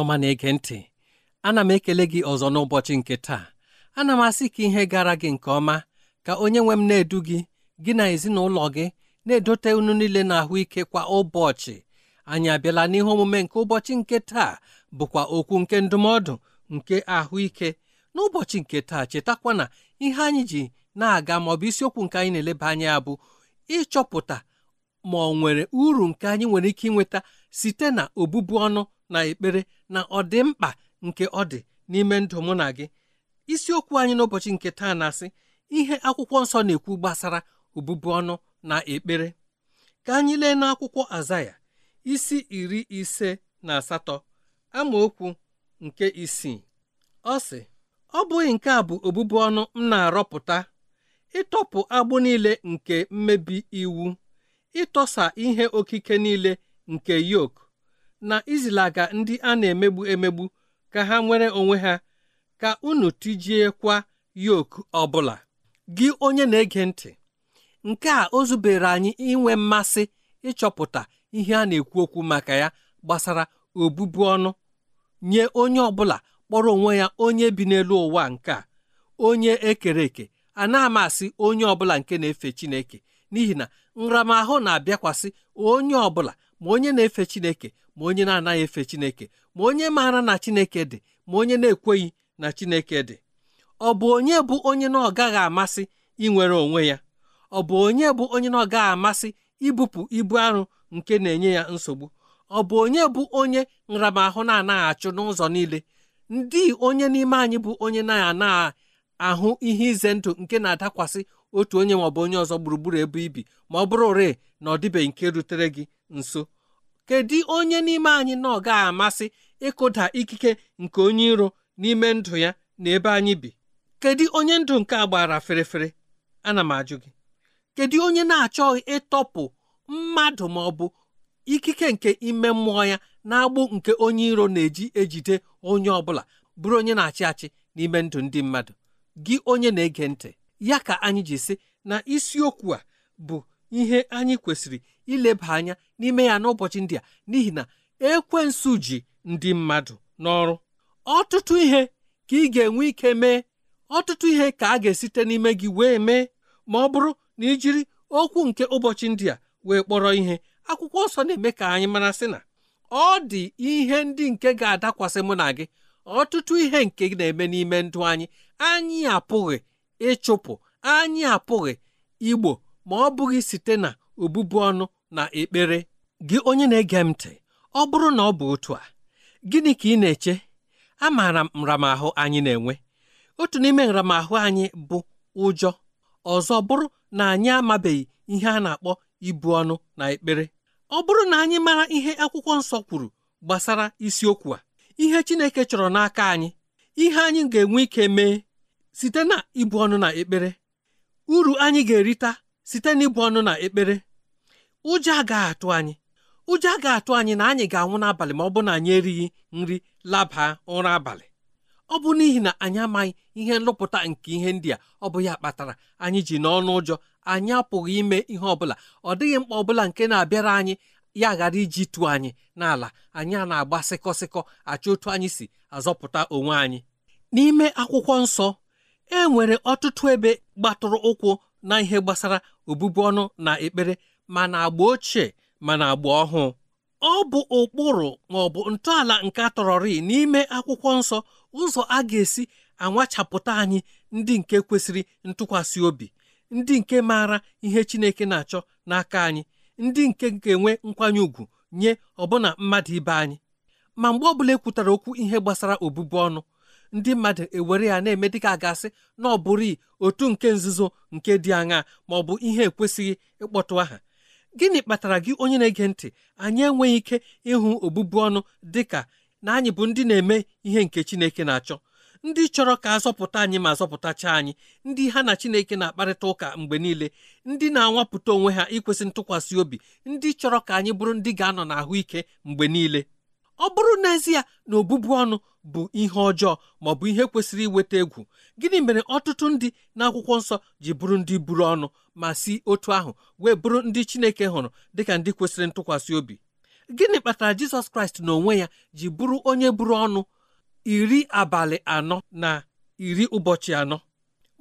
ọma na-ege ntị ana m ekele gị ọzọ n'ụbọchị nke taa ana m asị ka ihe gara gị nke ọma ka onye nwe m na-edu gị gị na ezinụlọ gị na-edote unu niile na ahụike kwa ụbọchị anyị abịala n'ihe omume nke ụbọchị nke taa bụkwa okwu nke ndụmọdụ nke ahụike n'ụbọchị nke taa chetakwa na ihe anyị ji na-aga ma ọ bụ isiokwu nke anyị na-eleba anya bụ ịchọpụta ma ọ nwere uru nke anyị nwere ike ịnweta site na obụbu ọnụ na ekpere na ọdịmkpa nke ọ dị n'ime ndụ mụ na gị isiokwu anyị n'ụbọchị nke taa na-asị ihe akwụkwọ nsọ na-ekwu gbasara obubu ọnụ na ekpere ka anyị lee n'akwụkwọ azaya isi iri ise na asatọ amaokwu nke isii ọ sị ọ bụghị nke a bụ obubu ọnụ m na-arọpụta ịtọpụ agbụ niile nke mmebi iwu ịtọsa ihe okike niile nke yok na izilaga ndị a na-emegbu emegbu ka ha nwere onwe ha ka unu tijiekwa yoku ọbụla gị onye na-ege ntị nke a o zubere anyị inwe mmasị ịchọpụta ihe a na-ekwu okwu maka ya gbasara obubu ọnụ nye onye ọbụla kpọrọ onwe ya onye bi n'elu ụwa nke a onye ekere eke a na-amasị onye ọbụla nke na-efe Chineke n'ihi na nramahụ na-abịakwasị onye ọbụla ma onye na-efe Chineke ma onye na-anaghị efe Chineke ma onye maara na Chineke dị ma onye na-ekweghị na Chineke dị ọ bụ onye bụ onye na ọ gaghị amasị inwere onwe ya ọ bụ onye bụ onye na ọ gaghị amasị ibupụ ibu arụ nke na-enye ya nsogbu ọ bụ onye bụ onye nramahụ na-anaghị achụ n'ụzọ niile ndị onye n'ime anyị bụ onye na-anaghị ahụ ihe ize ndụ nke na-adakwasị otu onye maọbụ onye ọzọ gburugburu ebe ibi ma ọ bụrụ ure na ọ dịbeghị nke rutere gị nso kedu onye n'ime anyị na ọ amasị ịkụda ikike nke onye iro n'ime ndụ ya na ebe anyị bi kedu onye ndụ nke a gbara ferefere ana m ajụ gị kedu onye na-achọghị ịtọpụ mmadụ ma ọ bụ ikike nke ime mmụọ ya na-agbụ nke onye iro na-eji ejide onye ọ bụla bụrụ onye na-achị achị n'ime ndụ ndị mmadụ gị onye na-ege ntị ya ka anyị ji sị na isiokwu a bụ ihe anyị kwesịrị ileba anya n'ime ya n'ụbọchị ndị a n'ihi na ekwensu ji ndị mmadụ n'ọrụ ọtụtụ ihe ka ị ga-enwe ike mee ọtụtụ ihe ka a ga-esite n'ime gị wee mee ma ọ bụrụ na ijiri okwu nke ụbọchị ndị a wee kpọrọ ihe akwụkwọ nsọ na-eme ka anyị mara sị na ọ dị ihe ndị nke ga-adakwasị mụ na gị ọtụtụ ihe nke na-eme n'ime ndụ anyị anyị apụghị ịchụpụ anyị apụghị igbo ma ọ bụghị site na obụbụ ọnụ na ekpere gị onye na-ege m ntị ọ bụrụ na ọ bụ otu a gịnị ka ị na-eche A maara nramahụ anyị na-enwe otu n'ime nramahụ anyị bụ ụjọ ọzọ bụrụ na anyị amabeghị ihe a na-akpọ ibu ọnụ na ekpere ọ bụrụ na anyị mara ihe akwụkwọ nsọ kwuru gbasara isiokwu a ihe Chineke chọrọ n'aka anyị ihe anyị ga-enwe ike mee site na ibu ọnụ na ekpere uru anyị ga-erita site n'ịbụ ọnụ na ekpere ụjọ agaghị atụ anyị ụjọ agaghị atụ anyị na anyị ga-anwụ n'abalị ma ọ bụ na anyị erighị nri laba ụra abalị ọ bụ n'ihi na anyị amaghị ihe nlụpụta nke ihe ndị a ọ bụ ya kpatara anyị ji n'ọnụ ụjọ anyị apụghị ime ihe ọbụla ọ dịghị mkpa ọbụla nke na-abịara anyị ya ghara iji tụọ anyị n'ala anyị a na-agba sịkọsịkọ achọ otu anyị si azọpụta onwe anyị n'ime akwụkwọ nsọ e nwere ọtụtụ ebe gbatụrụ ụkwụ na ihe gbasara obubu ọnụ na ekpere ma na agba ochie ma na agba ọhụụ ọ bụ ụkpụrụ ma ọ bụ ntọala nke atọrọrị n'ime akwụkwọ nsọ ụzọ a ga-esi anwachapụta anyị ndị nke kwesịrị ntụkwasị obi ndị nke maara ihe Chineke na-achọ n'aka anyị ndị nke ga-enwe nkwanye ùgwù nye ọbụna mmadụ ibe anyị ma mgbe ọbụla ekwutara okwu ihe gbasara obubu ọnụ ndị mmadụ ewere ya na-eme dị a gasị na ọ bụrụ otu nke nzuzo nke dị aṅa ma ọ bụ ihe ekwesịghị ịkpọtụ aha gịnị kpatara gị onye na-ege ntị anyị enweghị ike ịhụ obụbu ọnụ dị ka na anyị bụ ndị na-eme ihe nke Chineke na-achọ ndị chọrọ ka azọpụta anyị ma azọpụtacha anyị ndị ha na Chineke na-akparịta ụka mgbe niile ndị na-anwapụta onwe ha ikwesị ntụkwasị obi ndị chọrọ ka anyị bụrụ ndị ga-anọ n'ahụike mgbe niile ọ bụrụ n'ezie na ọbụbụ ọnụ bụ ihe ọjọọ ma ọ bụ ihe kwesịrị iweta egwu gịnị mere ọtụtụ ndị n'akwụkwọ nsọ ji bụrụ ndị buru ọnụ ma si otu ahụ wee bụrụ ndị Chineke hụrụ dịka ndị kwesịrị ntụkwasị obi gịnị kpatara Jizọs Kraịst n'onwe ya ji bụrụ onye buru ọnụ iri abalị anọ na iri ụbọchị anọ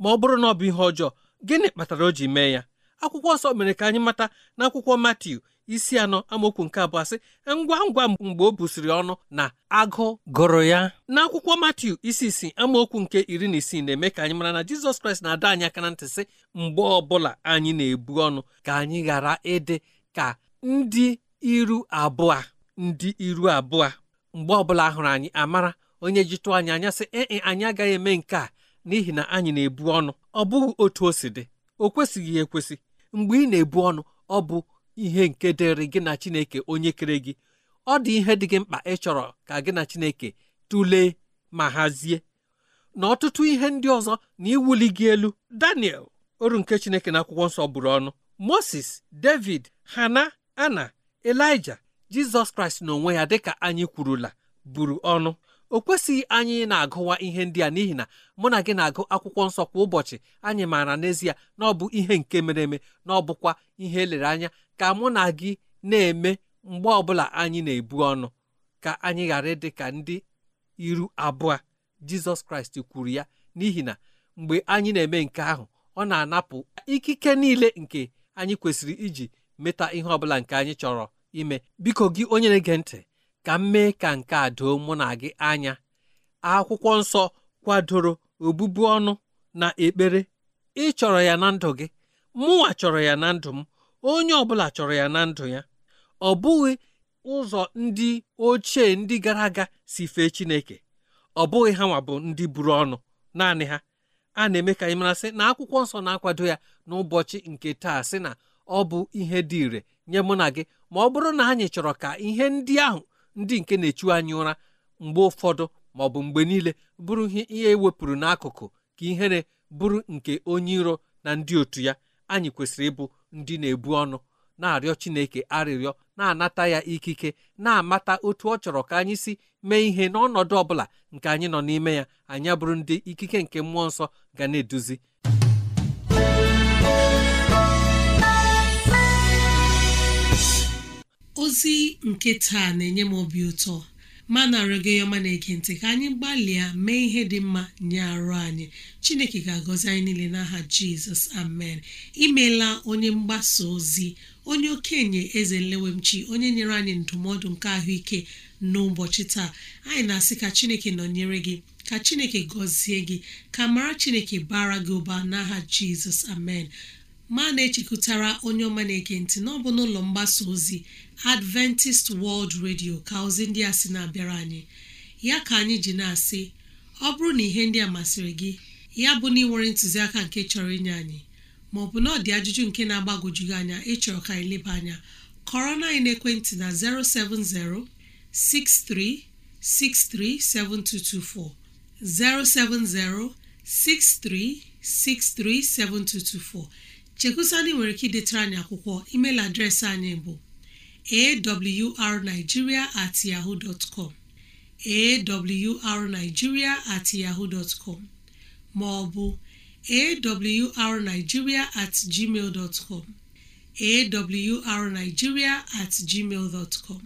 ma ọ bụrụ na ọ bụ ihe ọjọọ gịnị kpatara o ji mee ya akwụkwọ nsọ mere ka anyị mata n'akwụkwọ Matiu isi anọ amaokwu nke abụọ sị ngwa ngwa mgbe o busiri ọnụ na agụ gụrụ ya n'akwụkwọ Matiu isi isi amaokwu nke iri na isii na-eme ka anyị mara na Jizọs Kraịst na-adọ anyị aka na ntị sị mgbe ọbụla anyị na-ebu ọnụ ka anyị ghara ịdị ka ndị iru abụọ ndị iru abụọ mgbe ọbụla hụrụ anyị amara onye jitụ anyị anya sị ee anyị agaghị eme nke a n'ihi na anyị na-ebu ọnụ ọ bụghị otu o si dị o kwesịghị ekwesị mgbe ị na-ebu ọnụ ọ bụ ihe nke dịrị gị na Chineke onye kere gị ọ dị ihe dị gị mkpa ị chọrọ ka gị na Chineke tụlee ma hazie na ọtụtụ ihe ndị ọzọ na iwuli gị elu Daniel oru nke Chineke na akwụkwọ nsọ bụrụ ọnụ Moses David Hana Ana elija Jizọs Kraịst n'onwe ya dịka anyị kwurula buru ọnụ o kwesịghị anyị na-agụwa ihe ndị a n'ihi na mụ na gị na-agụ akwụkwọ nsọ kwa ụbọchị anyị maara n'ezie na ọ bụ ihe nke mere eme na ọ bụkwa ihe elere anya ka mụ na gị na-eme mgbe ọbụla anyị na-ebu ọnụ ka anyị ghara ịdị ka ndị iru abụọ jizọs kraịst kwuru ya n'ihi na mgbe anyị na-eme nke ahụ ọ na-anapụ ikike niile nke anyị kwesịrị iji meta ihe ọbụla nke anyị chọrọ ime biko gị onye na-ege ntị ka m mee ka nke a doo mụ na gị anya akwụkwọ nsọ kwadoro obụbu ọnụ na ekpere ị chọrọ ya na ndụ gị mụnwa chọrọ ya na ndụ m onye ọbụla chọrọ ya na ndụ ya ọ bụghị ụzọ ndị ochie ndị gara aga si fee Chineke ọ bụghị ha nwa bụ ndị buru ọnụ naanị ha a na-eme ka anyị mara sị na akwụkwọ nsọ na-akwado ya n'ụbọchị nke taa sị na ọ bụ ihe dị ire nye mụ na gị ma ọ bụrụ na anyị chọrọ ka ihe ndị ahụ ndị nke na-echu anyị ụra mgbe ụfọdụ ma ọ bụ mgbe niile bụrụ ihe ewepụrụ e n'akụkụ ka ihere bụrụ nke onye iro na ndị otu ya anyị kwesịrị ịbụ ndị na-ebu ọnụ na-arịọ Chineke arịrịọ na-anata ya ikike na-amata otu ọ chọrọ ka anyị si mee ihe n'ọnọdụ ọ bụla nke anyị nọ n'ime ya anyị abụrụ ndị ikike nke mmụọ nsọ ga na-eduzi ozi nke taa na-enye m obi ụtọ ma na-arịọ gị ọma na-ege ka anyị gbalịa mee ihe dị mma nye arụ anyị chineke ga-agọzi anyị niile n'aha jizọs amen imeela onye mgbasa ozi onye okenye eze nlewemchi onye nyere anyị ndụmọdụ nke ahụike n'ụbọchị taa anyị na-asị ka chineke nọnyere gị ka chineke gọzie gị ka mara chineke bara gị ụba n'aha jizọs amen ma na-echekụtara onye ọma na-ege ntị n'ọbụ n'ụlọ mgbasa ozi adventist world radio ka ozi ndị a sị na-abịara anyị ya ka anyị ji na-asị ọ bụrụ na ihe ndị a masịrị gị ya bụ na ịnwere ntụziaka nke chọrọ inye anyị maọbụ na ọ dị ajụjụ nke na-agbagwoju gị anya ịchọrọ ka anyị leba anya kọrọ na anyị n'ekwentị na 070 6363 070 chekusandị nwere ike idetara anyị akwụkwọ email adreesị anyị bụ awrnigeria at yahoo dot com awrnigeria at yahoo dot com ma awrnigeria at gmail dot com at gmail dot com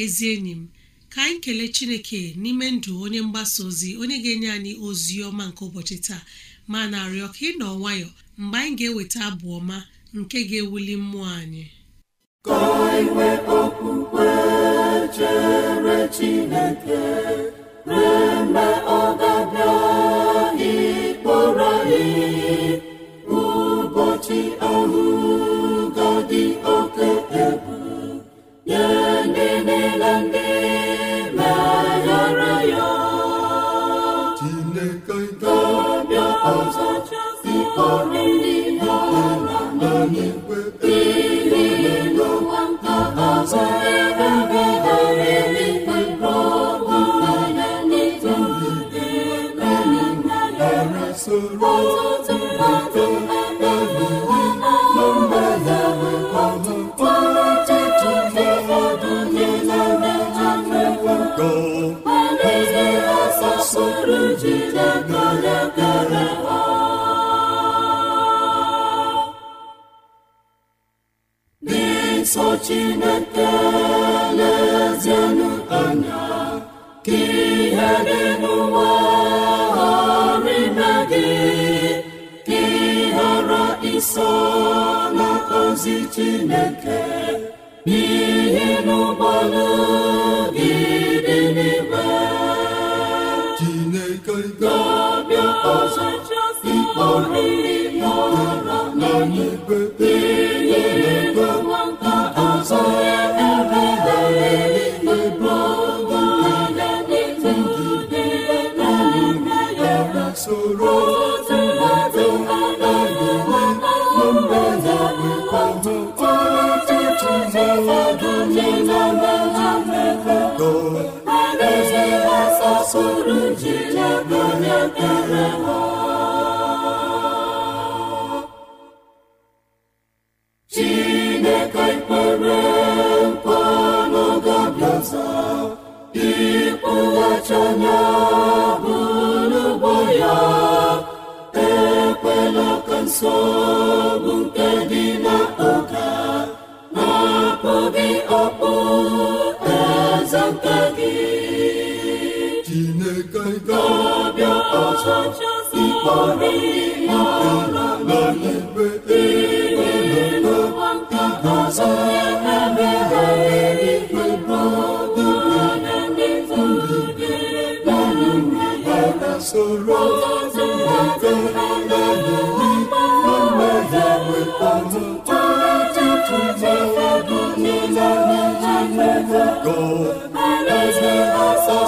ezi enyi m ka anyị kelee chineke n'ime ndụ onye mgbasa ozi onye ga-enye anyị ozi ọma nke ụbọchị taa ma na-arịọ ka ị nọ nwayọọ mgbe anyị ga-eweta abụ ọma nke ga-ewuli mmụọ anyị Chineke oriri n'ala n'ihi n'ụwa ezi chineke n'ihe n'ụgbọlụdidịn'ime chineke ga-abịa ọzọ ịkpọrọ mụra na n'igwe ihe nwata ọzọ ya ebeharịebeọgụdedededede soro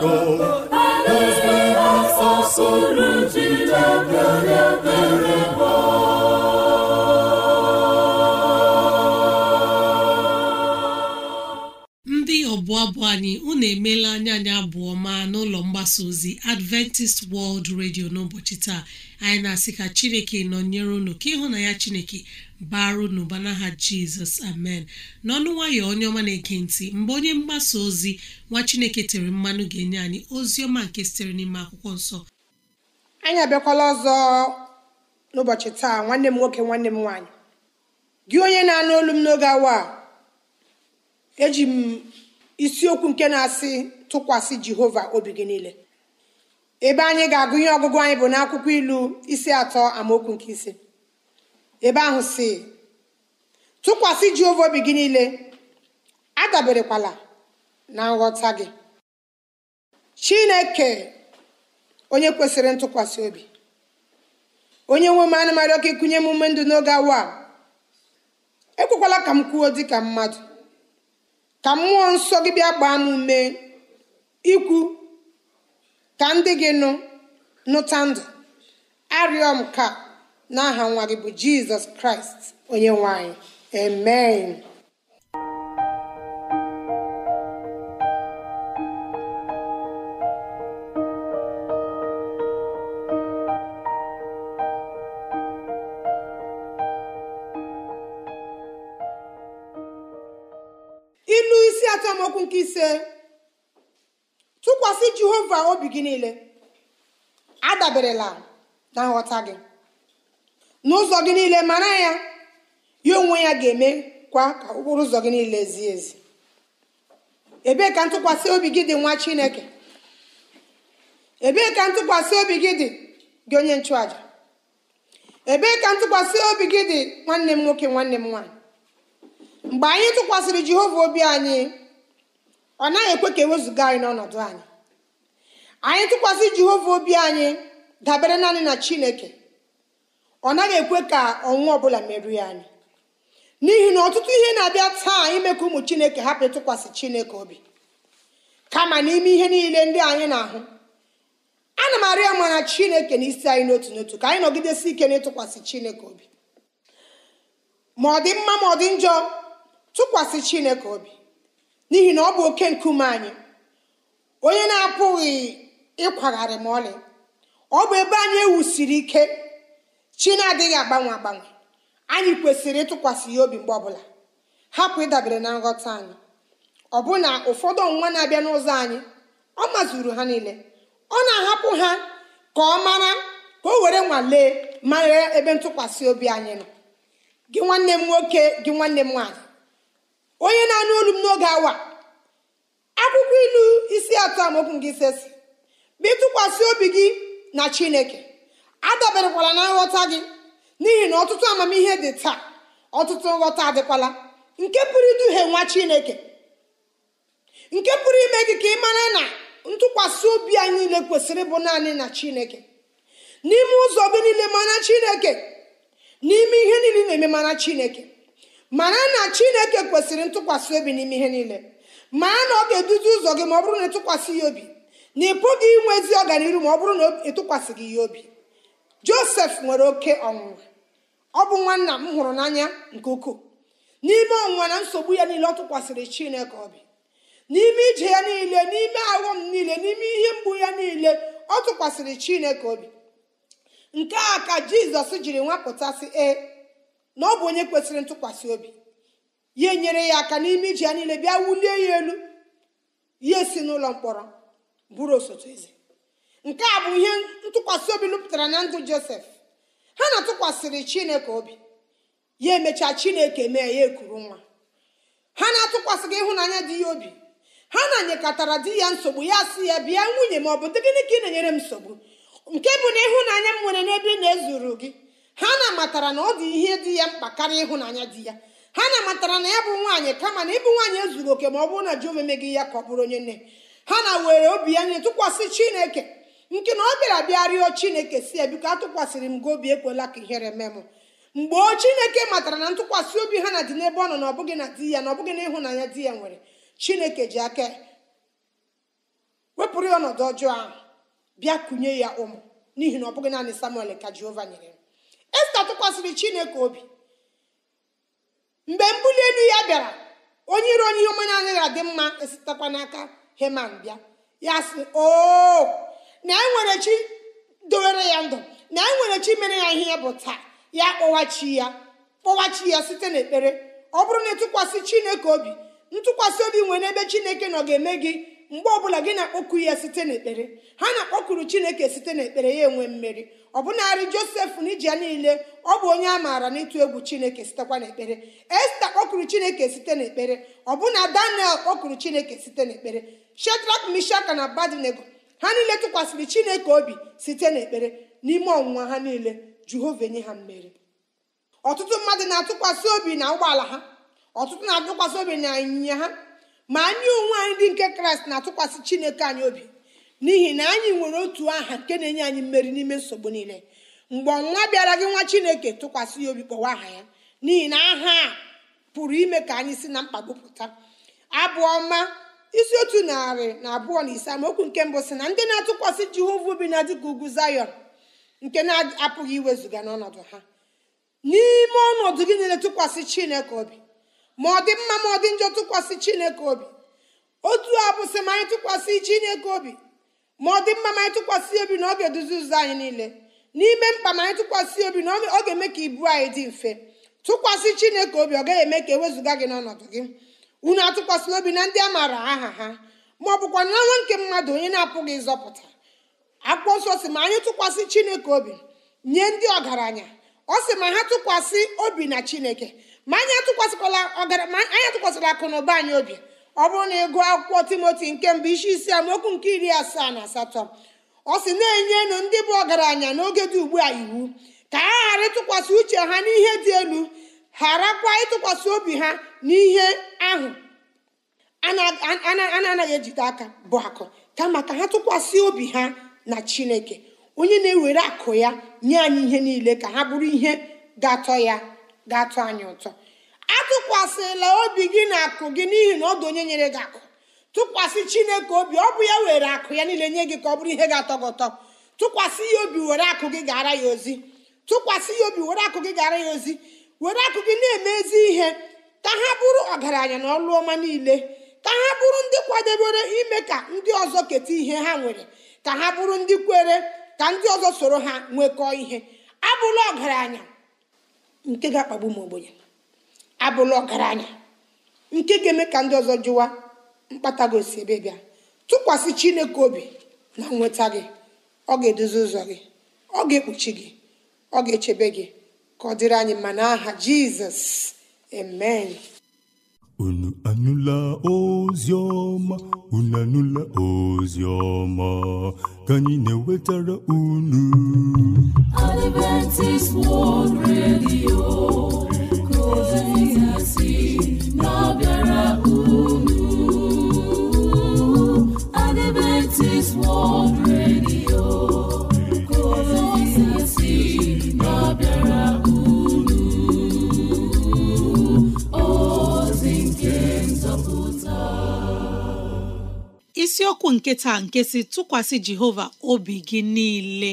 ndị ọbụ abụ anyị unu na anya anyị abụọ ma n'ụlọ mgbasa ozi adventist world radio n'ụbọchị taa anyị na-asị ka chineke nọ nyere unu ka ịhụ na ya chineke baru n'ụba n'aha jizọs amen n'ọnụ nwayọ onye ọma na-eke ntị mgbe onye mgbasa ozi nwa chineke tere mmanụ ga-enye anyị ozi ọma nke sitere n'ime akwụkwọ nsọ anyị abịakwala ọzọ n'ụbọchị taa nwanne m nwoke nwanne m nwaanyị gị onye na-anụ olu m n'oge awa eji m isiokwu nke na-asị tụkwasị jehova obi gị niile ebe anyị ga-agụnye ọgụgụ anyị bụ n'akwụkwọ ilu isi atọ amaokwu nke ise ebe ahụ si tụkwasị Jehova obi gị niile adaberekwala na nghọta gị Chineke onye kwesịrị ntụkwasị obi onye nwe m anụmarị ọka ịkụnye m ume ndụ n'oge awa ekwekwala ka m kwuo dịka mmadụ ka mmụọ nsọ gị bịa gbaa m ume ikwu ka ndị gị nụ nụta ndụ arịọ m ka n'aha nwa gị bụ jizọs kraịst onye nwanyị anyị amen ilu isi atọmọkụ nke ise tụkwasị jehova obi gị niile adaberela na nghọta gị n'ụzọ gị niile mara ya ya onwe ya ga eme kwa ka ụkpụrụ ụzọ gị niile zie ezi ebee ka ntụkwasị obi gị dị nwa chineke ebee ka ntụkwasị obi gị dị gị onye nchụaja ebee ka ntụkwasị obi gị dị nwanne m nwoke nwanne m nwaanyị mgbe anyị tụkwasịrị jehova obi anyị ọ naghị ekwe ka ewezụga anyị n'ọnọdụ anyị anyị tụkwasị jehova obi anyị dabere naanị na chineke ọ naghị ekwe ka ọnwụnwa ọbụla merụọ anyị n'ihi na ọtụtụ ihe na-abịa taa ime ka ụmụ chineke hapụ ịtụkwasị chineke obi kama n'ime ihe niile ndị anyị na-ahụ ana m arịa ma na chineke na isi anyị n'otu n'otu ka anyị nọgidesi ike n'ịtụkwasị chineke obi ma ọ dị mma ma ọ dị njọ tụkwasị chineke obi n'ihi na ọ bụ oke nkume anyị onye na-apụghị ịkwagharị ma ọlị ọ bụ ebe anyị ewusiri ike chi na-adịghị agbanwe agbanwe anyị kwesịrị ịtụkwasị ya obi mgbe ọbụla hapụ ịdabere na nghọta anyị ọbụna ụfọdụ ọnwa na-abịa n'ụzọ anyị ọ mazuru ha niile ọ na-ahapụ ha ka ọ mara ka o were nwalee mara ebe ntụkwasị obi anyị nọ gị nwanne m nwoke gị nwanne m nwaanyị onye na-anụ olu m n'oge awa akwụkwọ ilu isi atọ amaokwu nke ise si bụ ịtụkwasị obi gị na chineke adaberekwala na nghọta gị n'ihi na ọtụtụ amamihe dị taa ọtụtụ nghọta adịkwala nke pụrụ iduhie nwa chineke nke pụrụ ime gị ka ị mara na ntụkwasị obi a niile kwesịrị ịbụ naanị na chineke n'ime ụzọ gị niile mara chineke n'ime ihe niile na-eme mara chineke mara na chineke kwesịrị ntụkwasị obi n'ime ihe niile mara na ọ ga-eduzi ụzọ gị ma ọ bụrụ na ịtụkwasị ya obi na ị pụghị inwe ezi ọganihu ma ọ bụrụ na ịtụkwasị e gị ya obi josef nwere oke ọnwụnwa ọ bụ nwanna m hụrụ n'anya nke ukwuu n'ime ọnwụnwa na nsogbu ya niile ọ tụkwasịrị chineke obi n'ime ije ya niile n'ime aghọm niile n'ime ihe mgbu ya niile ọ tụkwasịrị chineke obi nke a ka jizọs jiri nwapụtasị e na ọ bụ onye kwesịrị ntụkwasị obi ya enyere ya aka n'ime ije ya niile bịa wulie ya elu ya esi n'ụlọ mkpọrọ bụrụ osote eze nke a bụ ihe ntụkwasị obi lụpụtara na ndụ josef ha na-atụkwasịrị chineke obi ya emechaa chineke mee ya ekuru nwa ha na-atụkwasịghị ịhụnanya dị ya obi ha na-anyekọtara di ya nsogbu ya si ya bịa nwunye m ọ bụ gịnị ka ị na-enyere m nsogbu nke bụ na ịhụnanya m nwere n'ebe na-ezuru gị ha na-amatara na ọ dị ihe dị ya mkpa karịa ịhụnanya di ya ha na-amatara na ya bụ nwaanyị kama na ịbụ nwaanyị ezuru oke ma ọ bụrụ na ji omeme ya ka ọ bụrụ onye nne ha na were obi ya nye tụkwasị chineke nke na ọ bịara bịa rịọ chineke si ya biko atụkwasịrị m gị obi ekwela ka ihere mee m mgbe o chineke matara na ntụkwasị obi ha na dị n'ebe ọ nọ na ọbụghị na di ya na ọbụghị na ịhụnanya di ya nwere chineke ji aka wepụrụ ya ọnọdụ ọjọọ ahụ bịa kunye ya ụmụ n'ihi na ọ bụghị naanị samuel ka jehova nyere ya esta tụkwasịrị chineke obi mgbe mbuli elu ya bịara onye iro onye ihe ọma anaghị adị mma esitakwa n'aka heman bịa ya sị o na enwere chi dowere ya ndụ na enwere chi mere ya ihe bụ taa ya kpọwachi ya kpọwachi ya site n'ekpere ọ bụrụ na ịtụkwasị chineke obi ntụkwasị obi nwere n'ebe chineke nọ ga-eme gị mgbe ọbụla gị na-akpọku ya site n'ekpere ha na-akpọkuru chineke site n'ekpere ya enwe mmeri ọbụnarị josef n'iji ya niile ọ bụ onye a maara n'ịtụ egwu chineke sitekwa n'ekpere esta kpọkuru chineke site n'ekpere bụna daniel kpọkuru chineke site n'ekpere shedrak mishaka na abadnego ha niile tụkwasịrị chineke obi site n'ekpere n'ime ọnwụnwa ha niile jehova enye ha mmeri ọtụtụ mmadụ na-atụkwasị obi na ụgbọala ha ọtụtụ na-atụkwasị obi na ịnyịnya ha ma anyị onwe anyị ndị nke kraịst na-atụkwasị chineke anyị obi n'ihi na anyị nwere otu aha nke na-enye anyị mmeri n'ime nsogbu niile mgbe ọnwa bịara gị nwa chineke tụkwasị ya obi kpọwa aha ya n'ihi na aha a pụrụ ime ka anyị si na mkpagbupụta pụta abụ ọma isi otu narị na abụọ na ise amaokwu nke mbụ si na ndị na-atụkwasị jehova obi na dịka ugwu zayon nke na-apụghị iwezụga n'ọnọdụ ha n'ime ọnọdụ gị niile tụkwasị chineke obi ma ọ dị mma ma ọ dị njọ tụkwasị chineke obi otu a bụsị ma anyị tụkwasị chineke obi ma ọ dị mma ma anyị tụkwasị obi na ọ ga-eduzi ụzọ anyị niile n'ime mkpa ma anyị tụkwasị obi na ọ ga-eme ka ibu anyị dị mfe tụkwasị chineke obi ọ gaghị eme ka ewezụga gị n'ọnọdụ gị unu atụkwasịla obi na ndị a maara aha ha ma ọ bụkwa na nwa nke mmadụ onye na-apụghị ịzọpụta akwụkwọ nsọ si ma anyị tụkwasị chineke obi nye ndị ọgaranya ọ sị ma ha tụkwasị obi na chineke ma anyị atụkwasịkwala ọgaranya anyị atụkwasịla akụ na ụba anyị obi ọ bụrụ na ịgụ akwụkwọ timoti nke mbụ isi isi amaokwu nke iri asaa na asatọ ọ sị na-enyenu ndị bụ ọgaranya n'oge dị ugbu a iwu ka ha ghara ịtụkwasị uche ha n'ihe dị elu gharakwa ịtụkwasị obi ha n'ihe ahụ anaghị ejide aka bụ akụ kama ka ha tụkwasị obi ha na chineke onye na-ewere akụ ya nye anyị ihe niile ka ha bụrụ ihe ga-atọ ya ga-atọ anyị ụtọ atụkwasịla obi gị na akụ gị n'ihi na ọ dụ onye nyere gị akụ tụkwasị chineke obi ọ bụ ya were akụ ya niile nye gị ka ọ bụrụ ihe ga-atọ gị ụtọ tụkwasị ya obi were akụ gị gara ya ozi tụkwasị ya obi were akụ gị gara ya ozi were akụ gị na ezi ihe ka ha bụrụ ọgaranya na ọlụ ọma niile ka ha bụrụ ndị kwadebere ime ka ndị ọzọ keta ihe ha nwere ka ha bụrụ ndị kwere ka ndị ọzọ soro ha nwekọọ ihe abụla ọgaranya nke ga-akpagbu m ogbenye abụla ọgaranya nke ga-eme ka ndị ọzọ jụwa mkpata gị ebe bịa tụkwasị chineke obi na nweta gị ọ ga-edozi ụzọ gị ọ ga-ekpuchi gị ọ ga-echebe gị ka ọ dịrị anyị mma n'aha jizọs amen unu anụla ozi ọma unu anụla ozi ọma ka anyị na-ewetara unu Adventist World Radio ka ozi si na-abịara unu Adventist World isiokwu nke taa nke si tụkwasị jehova obi gị niile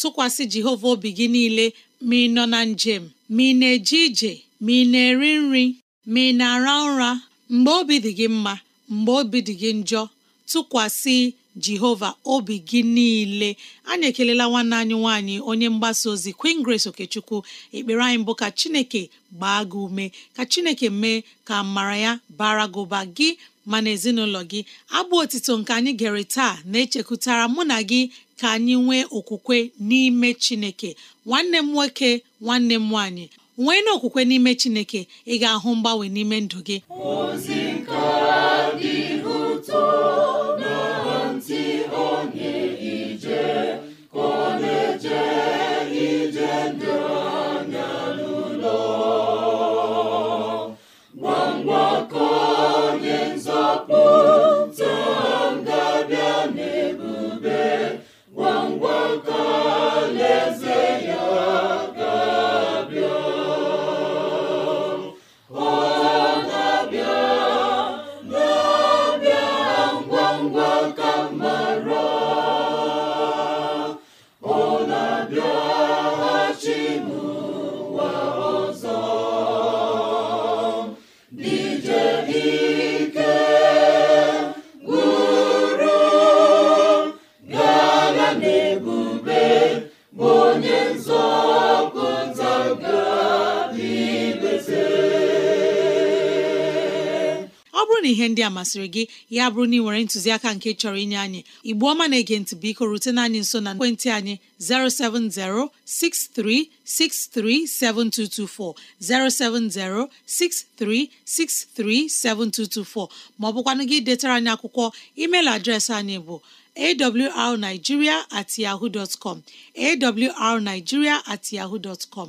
tụkwasị jehova obi gị niile ma ị nọ na njem ma ị na-eje ije ma ị na-eri nri ma ị na-ara ụra mgbe obi dị gị mma mgbe obi dị gị njọ tụkwasị jehova obi gị niile anyị ekelela nwanne anyị nwanyị onye mgbasa ozi Queen Grace Okechukwu ekpere anyị mbụ ka chineke gbaa gị ume ka chineke mee ka mara ya bara gị gị ma na ezinụlọ gị abụ otito nke anyị gere taa na-echekwutara mụ na gị ka anyị nwee okwukwe n'ime chineke nwanne m nwoke nwanne m nwanyị nwee n'ime chineke ị ga-ahụ mgbanwe n'ime ndụ gị masịrị gị ya bụrụ na ị nwere ntụziaka nke chọrọ inye anyị Igbu ọma na-ege biko na anyị nso na ekwentị anyị 07063637224 07063637224 ma ọ bụkwanụ gị detara anyị akwụkwọ email adreesị anyị bụ awrnigeria at yahoo dot com awrnigeria at yahoo dot com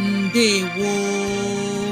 ndewo